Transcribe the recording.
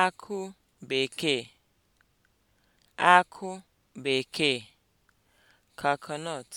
akụ bekee akụ bekee (coconut)